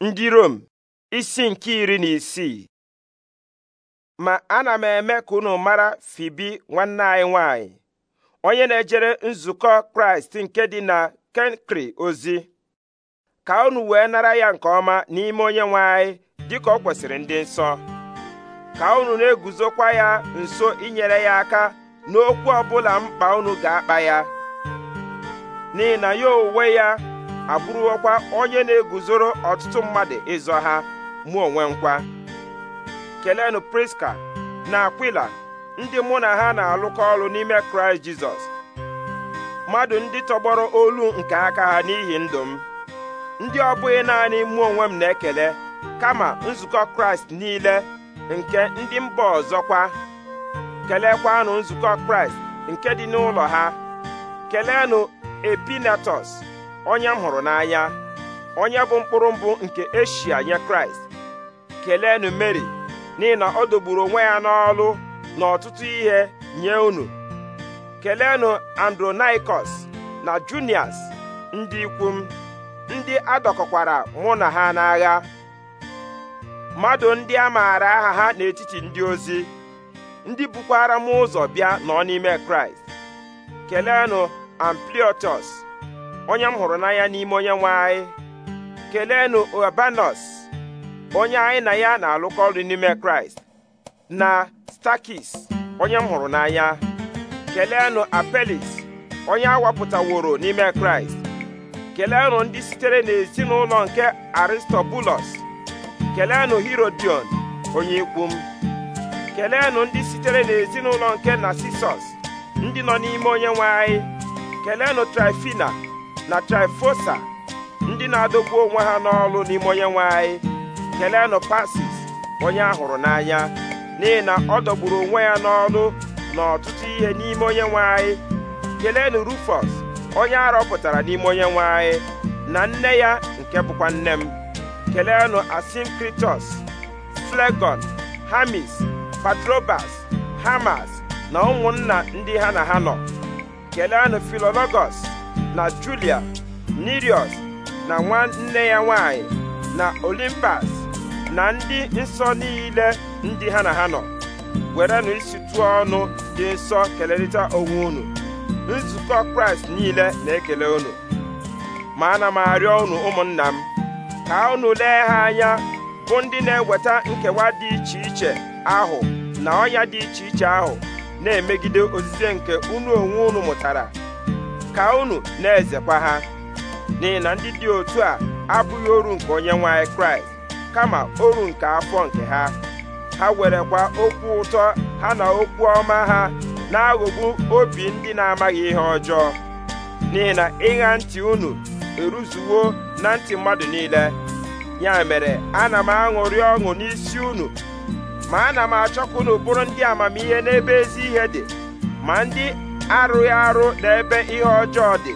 ndị Rom isi nke iri na isii ma ana m eme ka unu mara Fibi nwanne anyị nwanyị onye na-ejere nzukọ Kraịst nke dị na Kenkri ozi ka unu wee nara ya nke ọma n'ime onye nwanyị dị ka ọ kwesịrị ndị nsọ ka unu na-eguzokwa ya nso inyere ya aka n'okwu ọbụla mkpa unu ga-akpa ya n'ihi na ya onwe ya abụrụkwa onye na-eguzoro ọtụtụ mmadụ ịzọ ha mụ onwe nkwa kelenụ priska na akwila ndị mụ na ha na-alụkọ ọrụ n'ime kraịst jizọs mmadụ ndị tọgbọrọ olu nke aka ha n'ihi ndụ m ndị ọ bụghị naanị mụ onwe m na-ekele kama nzukọ kraịst niile nke ndị mba ọzọkwa kelekwanụ nzukọ kraịst nke dị n'ụlọ ha kelenụ epinatus onye m hụrụ n'anya onye bụ mkpụrụ mbụ nke eshia nye kraịst kelenu mary n'ihi na ọ dogburu onwe ya n'ọlụ na ọtụtụ ihe nye unu kelenu andronaikos na junias ndị ikwu m ndị adọkọkwara mụ na ha n'agha mmadụ ndị a maara aha ha n'etiti ndị ozi ndị bukwara m ụzọ bịa nọ n'ime kraịst keleenụ ampliotus onye m hụrụ n'anya n'ime onye nwe anyị keleenụ onye anyị na ya na-alụkọ ọrụ n'ime kraịst na stakis onye m hụrụ n'anya keleenụ apelis onye awapụtaworo n'ime kraịst keleenụ ndị sitere n'ezinụlọ nke aristobulus keleenụ herodion onye ikwu m ndị sitere n'ezinụlọ nke narcissus ndị nọ n'ime onye nwe anyị keleenụ trifina na Trifosa ndị na-adọgbu onwe ha n'ọlụ n'ime onye nwe anyị kelenụ Pasis onye a hụrụ n'anya n'ihi na ọ dọgburu onwe ya n'ọlụ na ọtụtụ ihe n'ime onye nwe anyị kelenụ rufus onye a rọpụtara n'ime onye nwe anyị na nne ya nke bụkwa nne m kelenụ Asinkritọs Flegon Hamis Patrobas Hamas na ụmụnna ndị ha na ha nọ kelenụ Filologos na Julia nirios na nwanne ya nwanyị na Olimpas na ndị nsọ niile ndị ha na ha nọ werenụ isi ọnụ dị nsọ kelerịta onwe unu nzukọ Kraịst niile na-ekele unu ma ana m arịọ unu ụmụnna m ka unu lee ha anya bụ ndị na-eweta nkewa dị iche iche ahụ na ọnya dị iche iche ahụ na-emegide ozize nke unu onwe unu mụtara ka unu na-ezekwa ha n'ihi na ndị dị otu a abụghị oru nke onye nwanyị kraịst kama oru nke afọ nke ha ha werekwa okwu ụtọ ha na okwu ọma ha na-aghọgbu obi ndị na-amaghị ihe ọjọọ n'ihi na ịgha ntị unu eruzuwo na ntị mmadụ niile ya mere ana m aṅụrị ọṅụ n'isi unu ma ana m achọkwa na unu bụrụ ndị amamihe n'ebe ezi ihe dị ma ndị arụghị arụ n'ebe ihe ọjọọ dị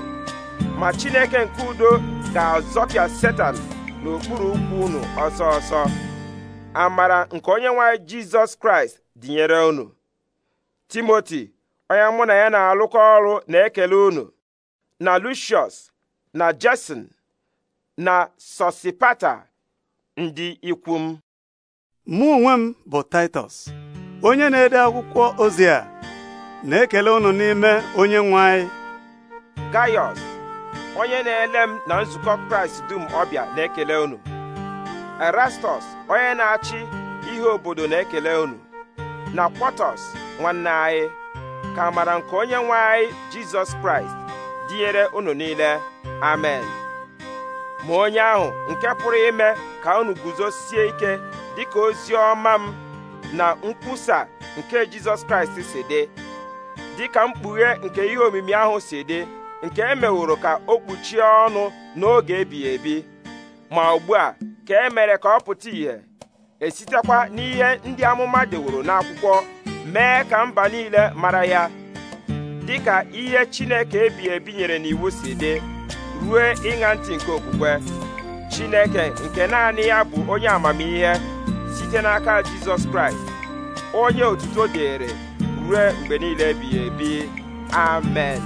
ma chineke nke udo ga-azọpịa setan n'okpuru ụkwụ unu ọsọ ọsọ amara nke onye nwanyị jizọs kraịst dịnyere unu timoti onye mụ na ya na-alụkọ ọrụ na-ekele unu na lucius na jason na sosipata ndị ikwu m mụ onwe m bụ titus onye na-ede akwụkwọ ozi a na-ekele unu n'ime onye nwe anyị onye na-ele m na nzukọ Kraịst dum ọbịa na-ekele unu Erastọs onye na-achị ihe obodo na-ekele unu na Kwọtọs nwanne anyị ka mara nke onye nwe anyị Jizọs Kraịst dịnyere unu niile amen ma onye ahụ nke pụrụ ime ka unu guzosie ike dịka ozi ọma m na nkwusa nke Jizọs Kraịst si dị dị ka mkpughe nke ihe omimi ahụ si dị nke e meworo ka o kpuchie ọnụ n'oge ebighị ebi ma ugbu a ka e mere ka ọ pụta ìhè esitekwa n'ihe ndị amụma deworo n'akwụkwọ mee ka mba niile mara ya dị ka ihe Chineke ebighị ebi nyere n'iwu si dị ruo ịṅa ntị nke okwukwe Chineke nke naanị ya bụ onye amamihe site n'aka Jizọs Kraịst onye otuto dịịrị ruo mgbe niile ebighị ebi amen